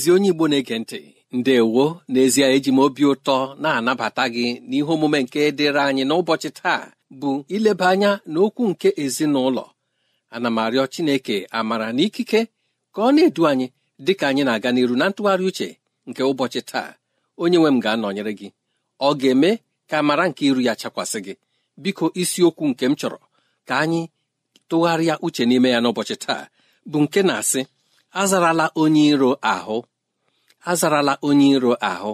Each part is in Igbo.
ezi onye igbo na-ege ntị ndewo n'ezie eji m obi ụtọ na-anabata gị n'ihe omume nke dịrị anyị n'ụbọchị taa bụ ileba anya n'okwu nke ezinụlọ ana m arịọ chineke amara na ikike ka ọ na-edu anyị dị ka anyị na-aga n'iru na ntụgharị uche nke ụbọchị taa onye nwe m ga-anọnyere gị ọ ga-eme ka amara nke iru ya chakwasị gị biko isiokwu nke m chọrọ ka anyị tụgharịa uche n'ime ya n'ụbọchị taa bụ nke na-asị azarala onye iro ahụ azarala onye iro ahụ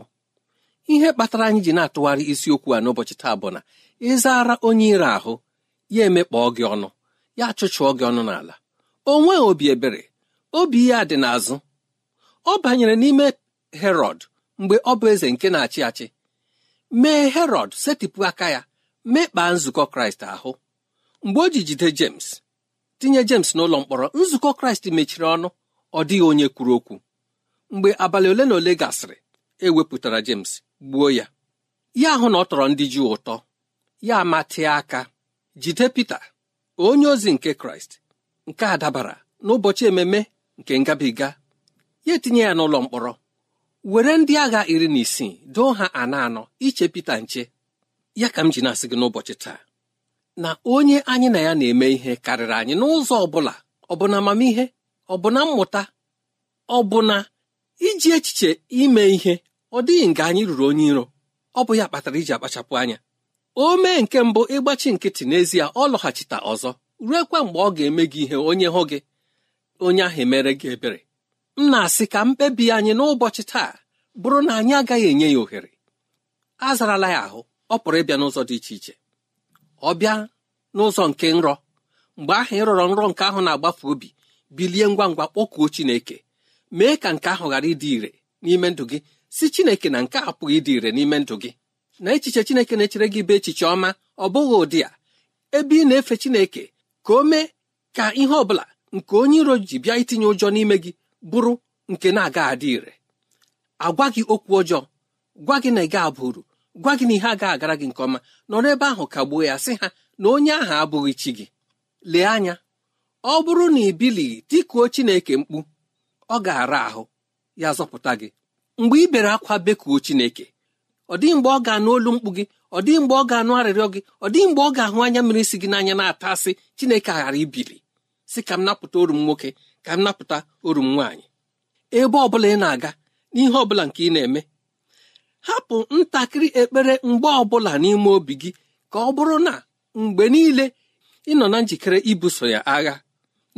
ihe kpatara anyị ji na-atụgharị isiokwu a n'ụbọchị taa bụ na ịzara onye iro ahụ ya emekpọọ gị ọnụ ya chụchụọ gị ọnụ n'ala o nweghị obi ebere obi ya dị n'azụ ọ banyere n'ime herọd mgbe ọ bụ eze nke na-achị achị mee herọd setịpụ aka ya mekpaa nzukọ kraịst ahụ mgbe o ji jide james tinye jems n'ụlọ mkpọrọ nzukọ kraịst mechiri ọnụ ọ dịghị onye kwuru okwu mgbe abalị ole na ole gasịrị e wepụtara James gbuo ya ya ahụ na ọ tọrọ ndị jụụ ụtọ ya amatịa aka jide Pita onye ozi nke Kraịst nke a dabara n'ụbọchị ememe nke ngabiga ya etinye ya n'ụlọ mkpọrọ were ndị agha iri na isii doo ha anọ anọ iche Pita nche ya ka m ji na-asị gị n'ụbọchị taa na onye anyị na ya na-eme ihe karịrị anyị n'ụzọ ọ bụla ọ bụ na amamihe ọ bụ na mmụta ọ bụ na iji echiche ime ihe ọ dịghị nga anyị ruru onye iro ọ bụ ya kpatara iji akpachapụ anya o mee nke mbụ ịgbachi nkịtị n'ezie ọ lọghachita ọzọ ruekwa mgbe ọ ga-eme gị ihe onye hụ gị onye ahụ emere gị ebere m na-asị ka mkpebi anyị n'ụbọchị taa bụrụ na anyị agaghị enye ya ohere azarala ya ahụ ọ pụrụ ịbịa n'ụzọ dị iche iche ọ bịa n'ụzọ nke nrọ mgbe ahụ ịrọrọ nrọ nke ahụ na-agbafe obi bilie ngwa ngwa kpọkuo Chineke mee ka nke ahụ ghara ịdị ire n'ime ndụ gị si Chineke na nke apụghị ịdị ire n'ime ndụ gị na echiche Chineke na-echere gị bụ echiche ọma ọ bụghị ụdị a ebe ị na-efe Chineke ka o mee ka ihe ọ bụla nke onye iro ji bịa itinye ụjọ n'ime gị bụrụ nke na-aga adị ire agwa gị okwu ọjọọ gwa gị na ị ga-abụ uru gwa gị na ihe agaghị agara gị nke ọma nọrọ ebe ahụ kagbuo ya sị ha na onye ahụ abụghị chi gị lee anya ọ bụrụ na ị bilighị tikuo Chineke mkpu ọ ga-ara ahụ ya zọpụta gị mgbe ị bere akwa bekuo chineke ọ dịghị mgbe ọ ga-anụ olu mkpu gị ọ dịghị mgbe ọ ga-anụ arịrịọ gị ọ dịghị mgbe ọ ga-ahụ anya mmiri si gị n'anya na-ata asị chineke ghara ibili si ka m napụta orum m nwoke ka m napụta orum m nwaanyị ebe ọ bụla ị na-aga n'ihe ọ bụla nke ị na-eme hapụ ntakịrị ekpere mgbe ọ bụla n'ime obi gị ka ọ bụrụ na mgbe niile ị nọ na njikere ibuso ya agha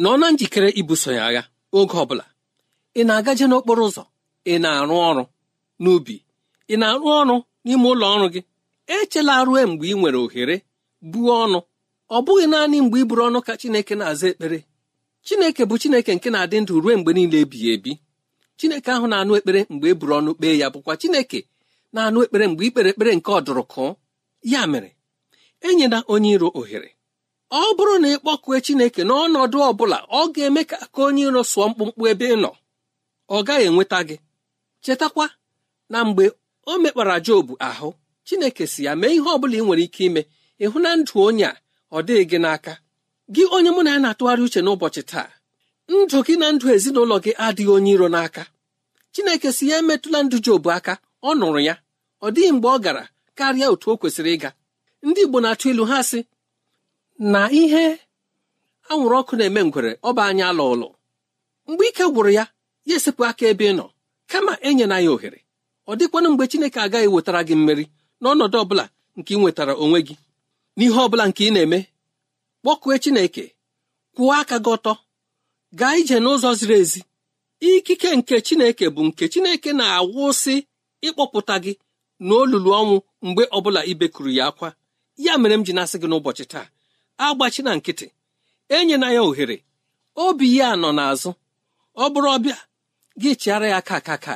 nọ na njikere ibuso ya agha oge ọ bụla ị na-agaje n'okporo ụzọ ị na-arụ ọrụ n'ubi ị na-arụ ọrụ n'ime ụlọ ọrụ gị echela rue mgbe ị nwere ohere buo ọnụ ọ bụghị naanị mgbe ị buru ọnụ ka Chineke na-aza ekpere Chineke bụ Chineke nke na-adị ndụ ruo mgbe niile ebighị ebi Chineke ahụ na-anụ ekpere mgbe e buru ọnụ kpee ya bụkwa Chineke na-anụ ekpere mgbe ikpere ekpere nke ọdụrụkụ ya mere enyela onye iro ohere ọ bụrụ na ị Chineke n'ọnọdụ ọ bụla ọ ga-eme ka aka onye iro sụọ mkpụmkpụ ebe ị nọ ọ gaghị enweta gị chetakwa na mgbe o mekpara jobu ahụ Chineke si ya mee ihe ọ bụla ị nwere ike ime ịhụ na ndụ onye a ọ dịghị gị n'aka gị onye mụ na ya na-atụgharị uche n'ụbọchị taa ndụ gị na ndụ ezinụlọ gị adịghị onye iro n'aka Chineke si ya emetụla ndụ jobu aka ọ nụrụ ya ọ dịghị mgbe ọ gara karịa otu o kwesịrị ịga ndị Igbo na-atụ ilu ha sị na ihe anwụrụ ọkụ na-eme ngwere ọba anya alụ ụlọ mgbe ike gwụrụ ya ya esepụ aka ebe ị nọ kama enyela ya ohere ọ dịkwanụ mgbe chineke agaghị wetara gị mmeri n'ọnọdụ ọbụla nke ị nwetara onwe gị n'ihe ọ bụla nke ị na-eme kpọkue chineke kwụọ aka gị ọtọ gaa ije n'ụzọ ziri ezi ikike nke chineke bụ nke chineke na-awụsị ịkpọpụta gị n'olulu ọnwụ mgbe ọbụla ibekuru ya akwa ya mere m ji na-asị gị n'ụbọchị taa agbachi na nkịtị enyela ya ohere obi ya nọ n'azụ ọ bụrụ ọbịa gị chịara ya aka aka ka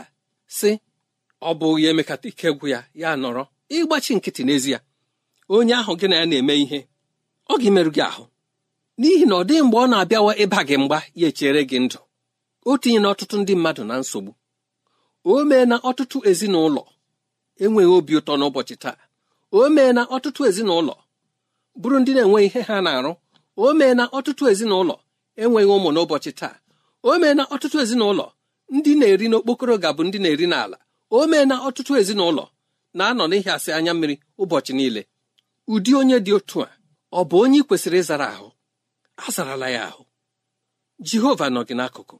si ọ bụ ya emekata ike gwụ ya ya nọrọ ịgbachi nkịtị n'ezie onye ahụ gị na ya na-eme ihe ọ ga-emerụ gị ahụ n'ihi na ọ dịghị mgbe ọ na-abịawa ịba gị mgba ya echere gị ndụ o na ọtụtụ ndị mmadụ na nsogbu o mee na ọtụtụ ezinụlọ enweghị obi ụtọ n'ụbọchị taa o mee na ọtụtụ ezinụlọ bụrụ ndị na-enweghị ihe ha na-arụ o mee na ọtụtụ ezinụlọ enweghị ụmụ n'ụbọchị taa o mee na ọtụtụ ezinụlọ ndị na-eri n'okpokoro ga-abụ ndị na-eri n'ala o mee na ọtụtụ ezinụlọ na-anọ asị anya mmiri ụbọchị niile ụdị onye dị otu a ọ bụ onye ị kwesịrị ịzara ahụ a zarala ya ahụ jehova nọ gị n'akụkụ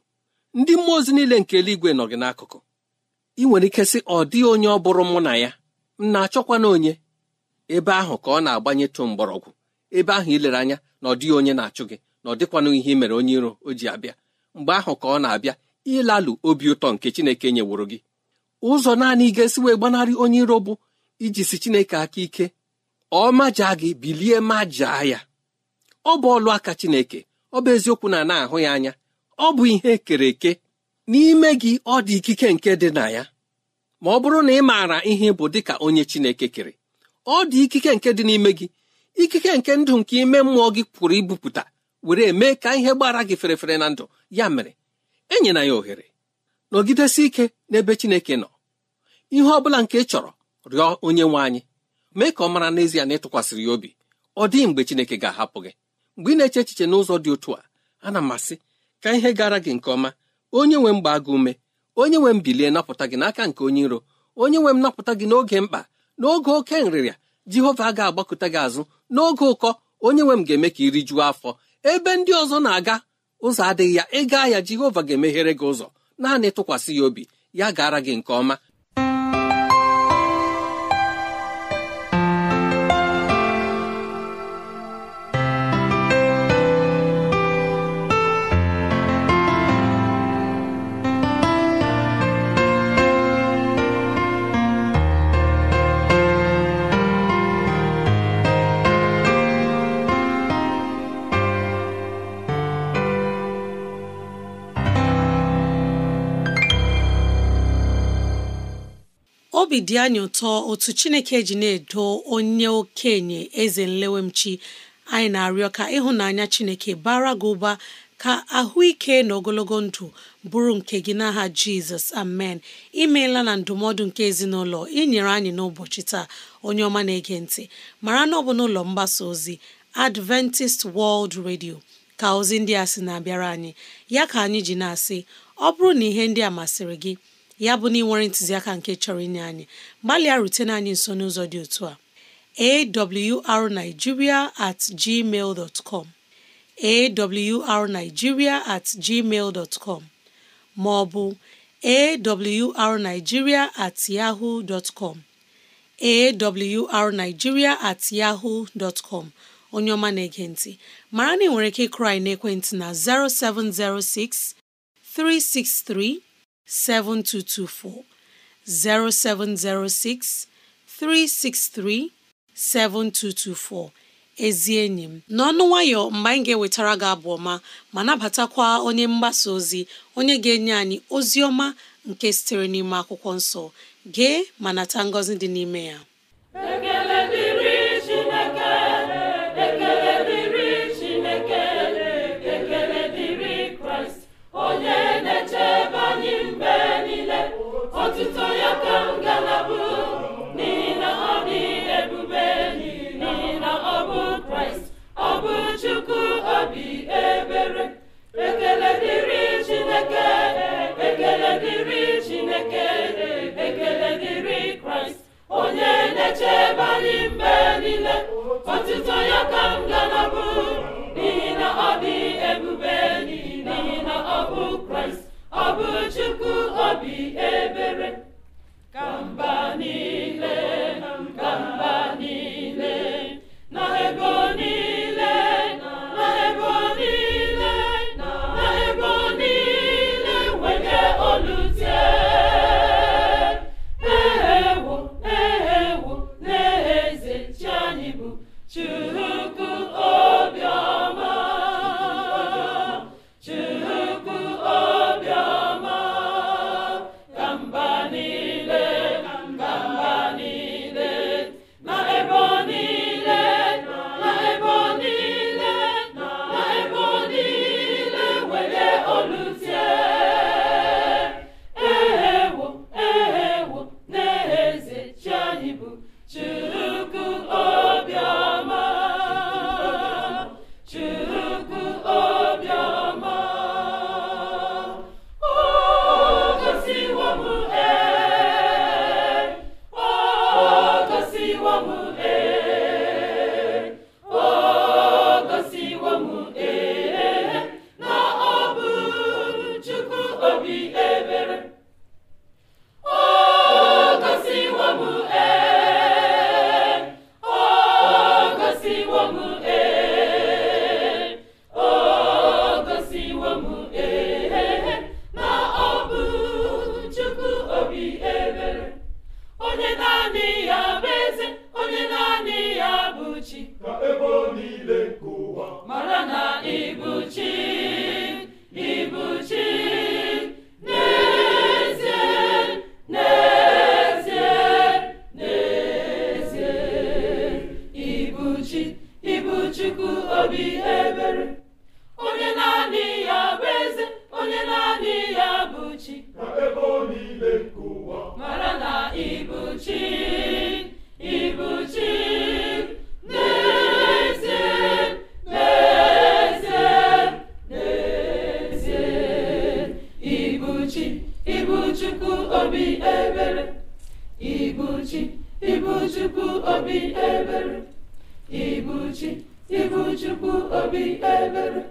ndị mmụọ ozi niile nke eluigwe nọ gị n'akụkụ ị nwere ike sị ọ dịghị onye ọ bụrụ mụ na ya m na-achọkwa onye ebe ahụ ka ọ na tụ mgbọrọgwụ ebe ahụ ilere anya na ọ dịghị onye na-achụ gị na ọ dịkwanụ ihe mere onye iro o ji abịa mgbe ahụ ka ọ na-abịa ịlalụ obi ụtọ nke chineke nyeworo gị ụzọ naanị ga-esi wee gbanarị onye iro bụ iji si chineke aka ike ọ maja gị bilie ma jaa ya ọ bụ ọlụ aka chineke ọ bụ eziokwu na na-ahụ ya anya ọ bụ ihe kere eke n'ime gị ọ dị ikike nke dị na ya ma ọ bụrụ na ị maara ihe bụ dị ka onye chineke kere ọ dị ikike nke dị n'ime gị ikike nke ndụ nke ime mmụọ gị pụrụ ibupụta were mee ka ihe gbara gị ferefere na ndụ ya mere enyela ya ohere nọgidesi ike n'ebe Chineke nọ ihe ọ bụla nke ị chọrọ rịọ onye nwe anyị mee ka ọ mara n'ezie na ịtụkwasịrị ya obi ọ dịghị mgbe Chineke ga-ahapụ gị mgbe ị na-eche echiche n'ụzọ dị otu a ana m asị ka ihe gara gị nke ọma onye nwe m gbaa ume onye nwe m bilie napụta gị n'aka nke onye iro onye nwe m napụta gị n'oge mkpa n'oge oke nrịrịa Jehova ga-agbakụta gị azụ n'oge ụkọ onye nwe m ga-eme ka iri juo afọ ebe ndị ọzọ na-aga ụzọ adịghị ya ị gaa ya jehova ga-emeghere gị ụzọ naanị tụkwasị ya obi ya gara gị nke ọma obi dị anyị ụtọ otu Chineke ji na-edo onye okenye eze nlewemchi anyị na-arịọ ka ịhụnanya Chineke bara gị ụba ka ahụike na ogologo ndụ bụrụ nke gị n'aha Jizọs amen imeela na ndụmọdụ nke ezinụlọ inyere anyị n'ụbọchị taa onye ọma na-ege ntị mara na ọ bụ n'ụlọ mgbasa ozi Adventist World Radio ka ozi ndị a sị na-abịara anyị ya ka anyị ji na-asị ọ bụrụ na ihe ndị a masịrị gị ya bụ na ị ntụziaka nke chọrọ inye anyị gbalịa na anyị nso n'ụzọ dị otu a awrnigeria at gmail dot com awrnigeria at gmail dot com ma ọ bụ awrnigeria at com awrnigeria at com onye ọma na-ege ntị mara na ị nwere ike kraị na ekwentị na 0706 363 7224 0706 363 7224 ezi enyi m n'ọnụ nwayọ mgbe anyị ga-ewetara gị abụ ọma ma nabatakwa onye mgbasa ozi onye ga-enye anyị ozi ọma nke sitere n'ime akwụkwọ nsọ gee ma nata ngọzi dị n'ime ya Abi ever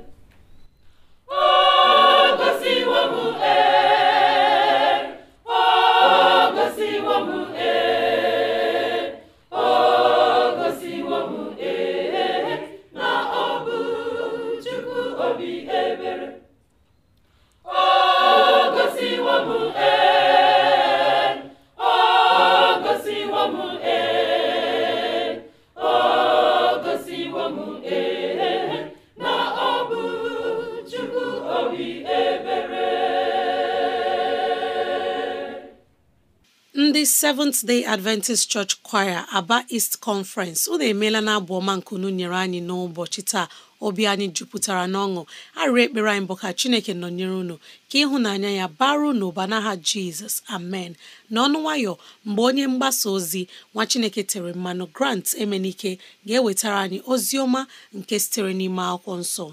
Seventh Day Adventist Church Choir Aba East Conference unu emeela na abụ ọma nkunu nyere anyị n'ụbọchị taa obi anyị jupụtara n'ọṅụ arịrị ekpere anyị bụ ka Chineke nọnyere unu ka ịhụnanya ya baru n'ụba n'aha Jizọs amen n'ọnụ nwayọ mgbe onye mgbasa ozi nwa Chineke tere mmanụ Grant Emenike ga-ewetara anyị ozi ọma nke sitere n'ime akwụkwọ nsọ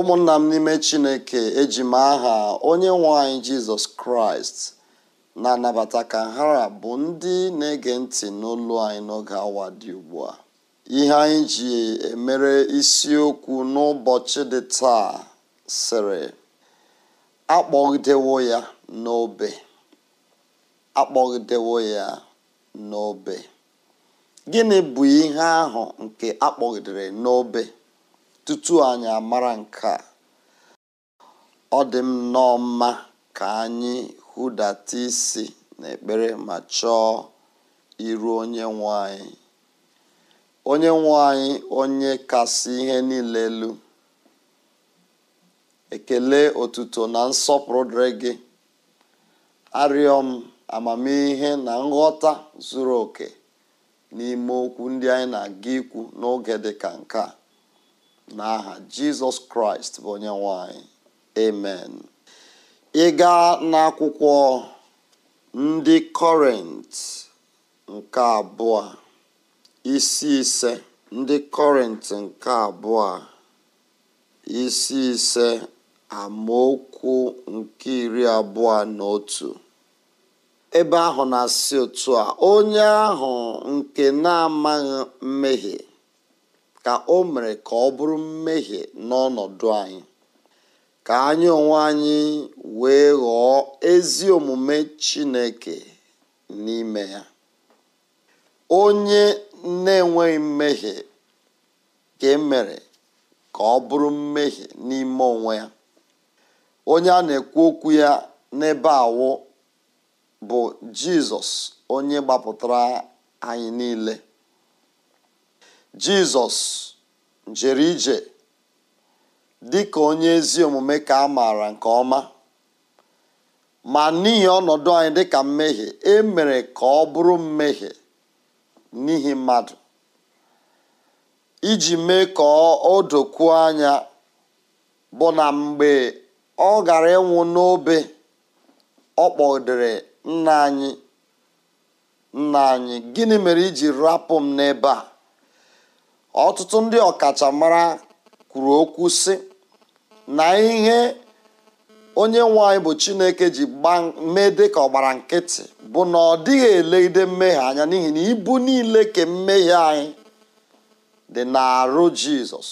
ụmụnna m n'ime chineke ejima aha onye nwanyị jizọs kraịst na-anabata ka nhara bụ ndị na-ege ntị n'olu anyị n'oge awa dị ugbu a ihe anyị ji emere isiokwu n'ụbọchị dị taa sịrị akpọgidewo ya n'obe akpọgidewo ya n'obe gịnị bụ ihe ahụ nke akpọgidere n'obe tutu anyị amara nke ọ dị m nnọọ mma ka anyị hụdata isi n'ekpere ma chọọ iru onye nwe anyị onye nwe anyị onye kasị ihe niile elu ekele otuto na nsọpụrụ dịrị gị arịọ m amamihe na nghọta zuru oke n'ime okwu ndị anyị na-aga ikwu n'oge dị ka nke a n'aha jizọs kraịst bụ onye nwanyị amen ị gaa n'akwụkwọ ndị kọrent nke abụọ isi ise ndị kọrent nke abụọ isi ise amaokwu nke iri abụọ na otu ebe ahụ na-asị otu a onye ahụ nke na-amaghị mmehie ka o mere ka ọ bụrụ mmehie n'ọnọdụ anyị ka anyị onwe anyị wee ghọọ ezi omume chineke n'ime ya onye na-enweghị mmehie ka e mere ka ọ bụrụ mmehie n'ime onwe ya onye a na-ekwu okwu ya n'ebe awụ bụ jizọs onye gbapụtara anyị niile jizọs jere ije dị ka onye ezi omume ka a maara nke ọma ma n'ihi ọnọdụ anyị dị ka mmehie e mere ka ọ bụrụ mmehie n'ihi mmadụ iji mee ka o dokuo anya bụ na mgbe ọ gara ịnwụ n'obe ọ kpọdere nna anyị nna anyị gịnị mere iji rapụ m n'ebe a ọtụtụ ndị ọkachamara kwuru okwu si na ihe onye nwe anyị bụ chineke ji mee dị ka ọgbara nkịtị bụ na ọ dịghị elegide mmehie anya n'ihi na ibu niile ka mmehie anyị dị n'arụ jizọs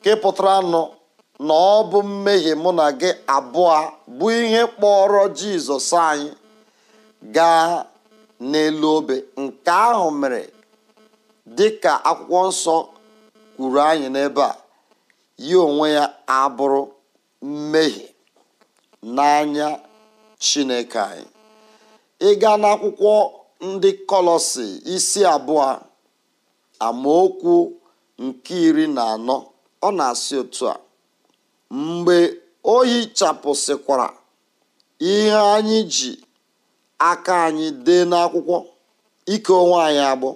nke pụtara nụ na ọ bụ mmehie mụ na gị abụọ bụ ihe kpọrọ jizọs anyị gaa n'elu obe nke ahụ mere dị ka akwụkwọ nsọ kwuru anyị n'ebe a ya onwe ya abụrụ mmehie n'anya chineke anyị ịga n'akwụkwọ ndị kọlọsi isi abụọ amaokwu nke iri na anọ ọ na-asị otu a mgbe o hichapụsịkwara ihe anyị ji aka anyị dee n'akwụkwọ ike onwe anyị agbụ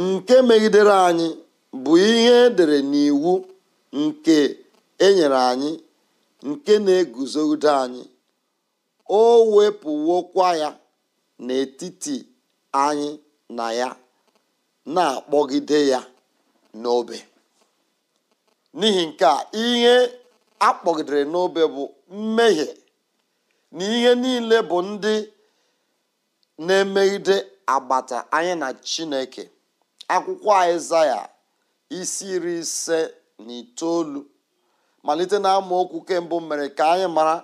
nke megidere anyị bụ ihe edere n'iwu nke enyere anyị nke na-eguzogide anyị o wepụwokwa ya n'etiti anyị na ya na-akpọgide ya n'obe n'ihi nke a ihe akpọgidere n'obe bụ mmehie na ihe niile bụ ndị na-emegide agbata anyị na Chineke akwụkwọ ya isi iri ise na itoolu malite na okwu kembụ mere ka anyị mara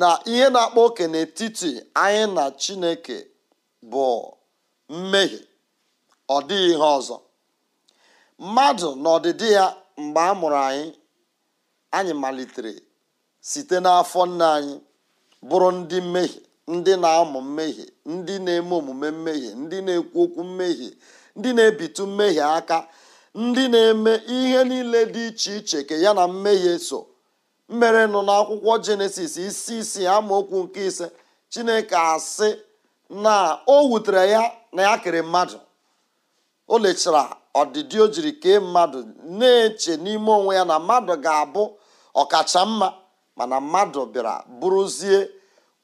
na ihe na akpọ oke n'etiti anyị na chineke bụ mmehie ọ dịghị ihe ọzọ mmadụ na ọdịdị ya mgbe a mụrụ anyị anyị malitere site n'afọ nna anyị bụrụ ndị mmehie ndị na-amụ mmehie ndị na-eme omume mmehie ndị na-ekwu okwu mmehie ndị na-ebitu mmehie aka ndị na-eme ihe niile dị iche iche ka ya na mmehie so mmere nọ n'akwụkwọ jenesis isi isii amaokwu nke ise chineke asị na o wutere ya na ya kere mmadụ o lechara ọdịdị o jiri kee mmadụ na-eche n'ime onwe ya na mmadụ ga-abụ ọkacha mma mana mmadụ bịara bụrụzie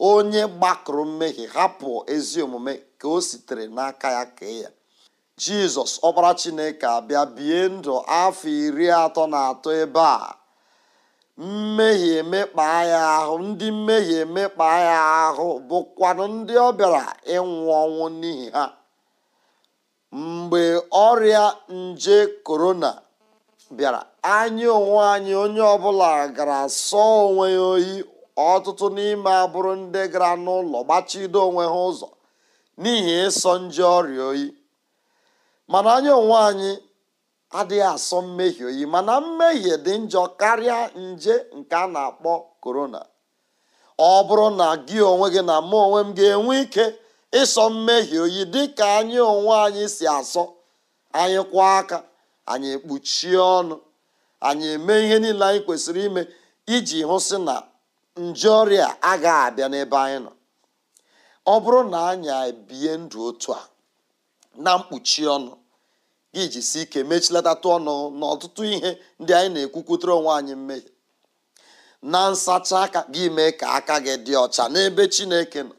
onye gbakụrụ mmehie hapụ ezi omume ka o sitere n'aka ya kee ya jizọs ọbara chineke abịa bie ndụ afọ iri atọ na atọ ebe a mmehie emekpa ya ahụ ndị mmehie emekpa ya ahụ bụkwanụ ndị ọ bịara ịnwụ ọnwụ n'ihi ha mgbe ọrịa nje korona bịara anya onwe anyị onye ọbụla gara sọọ onwe ya oyi ọtụtụ n'ime abụrụ ndị gara n'ụlọ gbachido onwe ha ụzọ n'ihi ịsọ nje ọrịa oyi mana anyị onwe anyị adịghị asọ mmehie oyi mana mmehie dị njọ karịa nje nke a na-akpọ korona ọ bụrụ na gị onwe gị na mụ onwe m ga-enwe ike ịsọ mmehie oyi dị ka anyị onwe anyị si asọ anyị kwụọ aka anyị ekpuchie ọnụ anyị eme ihe niile anyị kwesịrị ime iji hụ na nje ọrịa agaghị abịa n'ebe anyị nọ ọ bụrụ na anyị ebie ndụ otu a na mkpuchi ọnụ gị jisi ike mechilatatụ ọnụ na ọtụtụ ihe ndị anyị na-ekwukwutere onwe anyị mmehie na nsacha aka gị mee ka aka gị dị ọcha n'ebe chineke nọ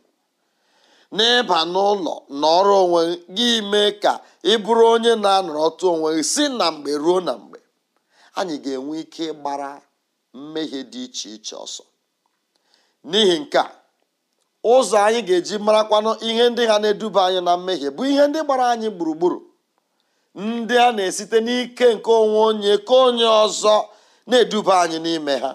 n'ịba n'ụlọ na ọrụ onwe gị mee ka ị bụrụ onye na anọrọ ọtụ onwe gị si na mgbe ruo na mgbe anyị ga-enwe ike gbara mmehie dị iche iche ọsọ n'ihi nke a ụzọ anyị ga-eji marakwanụ ihe ndị ha na-eduba anyị na mmehie bụ ihe ndị gbara anyị gburugburu ndị a na-esite n'ike nke onwe onye ka onye ọzọ na-eduba anyị n'ime ha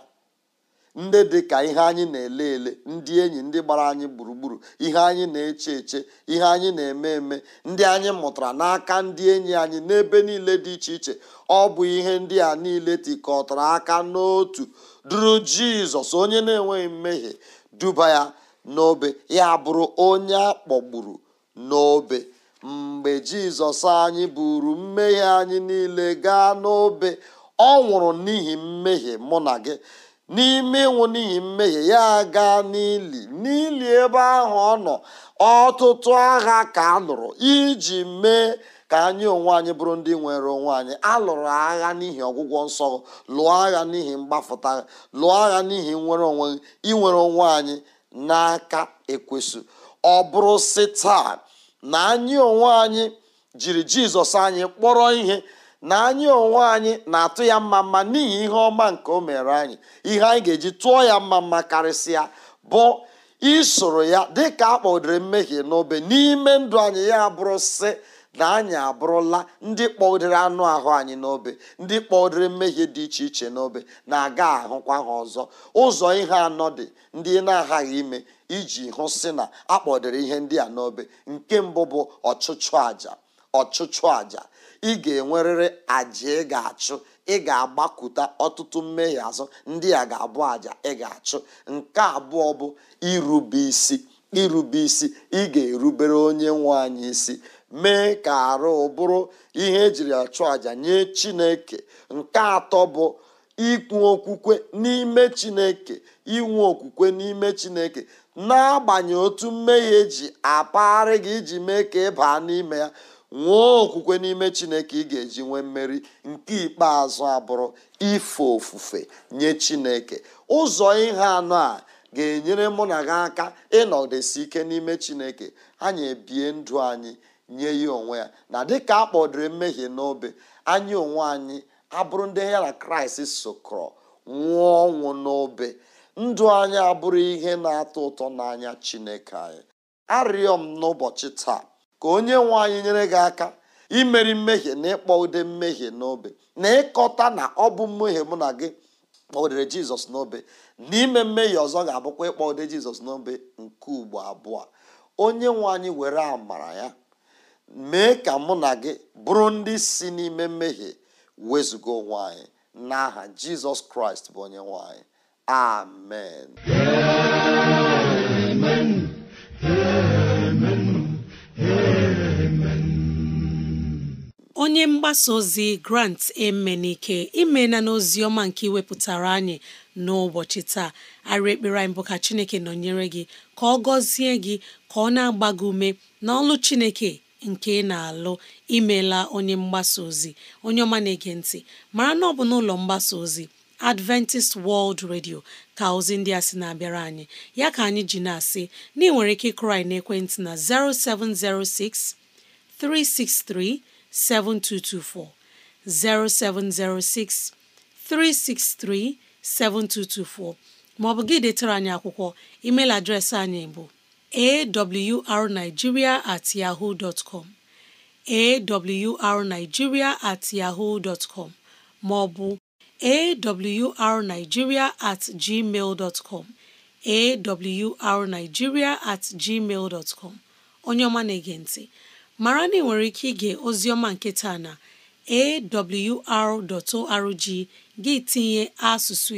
ndị dị ka ihe anyị na-ele ele ndị enyi ndị gbara anyị gburugburu ihe anyị na-eche eche ihe anyị na-eme eme ndị anyị mụtara n'aka ndị enyi anyị n'ebe niile dị iche iche ọ bụ ihe ndị a niile tikọtara aka n'otu duru jizọs onye na-enweghị mmehie duba ya n'obe ya bụrụ onye a kpọgburu n'obe mgbe jizọs anyị buru mmehie anyị niile gaa n'obe ọ nwụrụ n'ihi mmehie mụ na gị n'ime ịnwụ n'ihi mmehie ya gaa n'ili n'ili ebe ahụ ọ nọ ọtụtụ agha ka a nụrụ iji mee ka anyị onwe anyị bụrụ ndị nwere onwe anyị alụrụ agha n'ihi ọgwụgwọ nsọ lụọ agha n'ihi mgbafụta lụọ agha n'ihi nwere onwe inwere onwe anyị n'aka ekwesụ ọ bụrụ si taa na anyị onwe anyị jiri jizọs anyị kpọrọ ihe na anyị onwe anyị na-atụ ya mma mma n'ihi ihe ọma nke o mere anyị ihe anyị ga-eji tụọ ya mma mma karịsịa bụ isoro ya dịka a kpọdere mmehie n'obe n'ime ndụ anyị ya bụrụ si. na anyị abụrụla ndị kpọdere anụ ahụ anyị n'obe ndị kpọdere mmehie dị iche iche n'obe na-aga ahụkwa ha ọzọ ụzọ ihe anọ dị ndị na-aghaghị ime iji hụ sị na akpọdere ihe ndị a n'obe nke mbụ bụ ọchụchụ àjà ọchụchụ àjà ị ga-enwerịrị àjà ị ga-achụ ị ga-agbakụta ọtụtụ mmehie azụ ndị a ga-abụ àjà ị ga-achụ nke abụọ bụ irube isi irube isi ị ga-erubere onye nwe anyị isi mee ka arụ bụrụ ihe ejiri achụ àjà nye chineke nke atọ bụ ikwu okwukwe n'ime chineke inwe okwukwe n'ime chineke n'agbanyeghị otu mmehie ji apagharị gị iji mee ka ị baa n'ime ya nwee okwukwe n'ime chineke ị ga-eji nwee mmeri nke ikpeazụ abụrụ ife ofufe nye chineke ụzọ ihe anọ a ga-enyere mụ na gị aka ịnọdesi ike n'ime chineke anyị ebie ndụ anyị nye ya onwe ya na dịka a kpọdụrụ mmehie n'obe anyị onwe anyị abụrụ ndị ya na kraịst sokọrọ nwụọ ọnwụ n'obe ndụ anyị abụrụ ihe na-atọ ụtọ n'anya chineke anyị arịọ m n'ụbọchị taa ka onye nwe anyị nyere gị aka imeri mmehie na ịkpọ ude mmehie n'obe na ịkọta na ọ bụ mmehie mụ na gị kpọdere jizọs n'obe na ime mmehie ọzọ ga-abụkwa ịkpọ ude jizọs n'obe nke ugbo abụọ onye nwe anyị were amara ya mee ka mụ na gị bụrụ ndị si n'ime mmehie wezụga onwe anyị n'aha jizọs kraịst bụ onye nwanyị amen amen amen amen onye mgbasa ozi grant emenike imena n'ozi ọma nke iwepụtara anyị n'ụbọchị taa arị ekpere anyị bụ ka chineke nọnyere gị ka ọ gọzie gị ka ọ na-agba gị ume n'ọlụ chineke nke ị na-alụ imela onye mgbasa ozi onye ọma na-ege mara na ọ bụ n'ụlọ mgbasa ozi Adventist World Radio ka ozi ndị a sị na-abịara anyị ya ka anyị ji na-asị na ị nwere ike ịkụrụ anyị n'ekwentị na 0706 363 7224 0706 363 7224 ma ọ bụ gị detara anyị akwụkwọ email adreesị anyị bụ awrnigeria at yahoo dot com awrnigeria at yahoo com maọbụ awrnigeria at gmail com awrnigeria at gmail com onye ọma na-ege mara na ị nwere ike ige ozioma nke taa na awr.org gị tinye asụsụ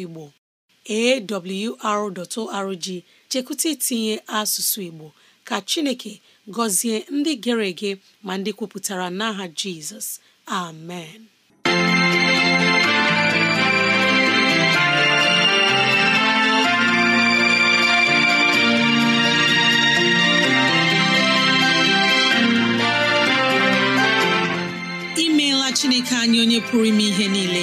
Igbo awr.org chekwụta itinye asụsụ Igbo ka Chineke gọzie ndị gere ege ma ndị kwupụtara n'aha Jizọs amen imeela Chineke anyị onye pụrụ ime ihe niile